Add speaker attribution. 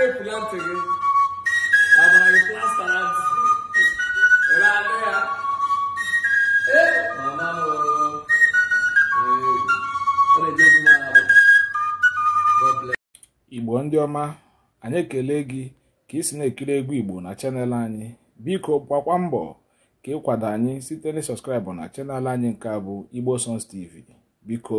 Speaker 1: anya epula ntị gị agbara gị plasta na ntị ọ anụ ya ee mama eh, m igbo ndị ọma anyị ekele gị ka ị si na-ekiri egwu igbo na chanel anyị biko gbakwa mbọ ka ịkwado anyị site na na chanel anyị nke abụ igbo tv biko